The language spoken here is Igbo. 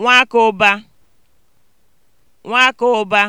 nwakụba nwakụba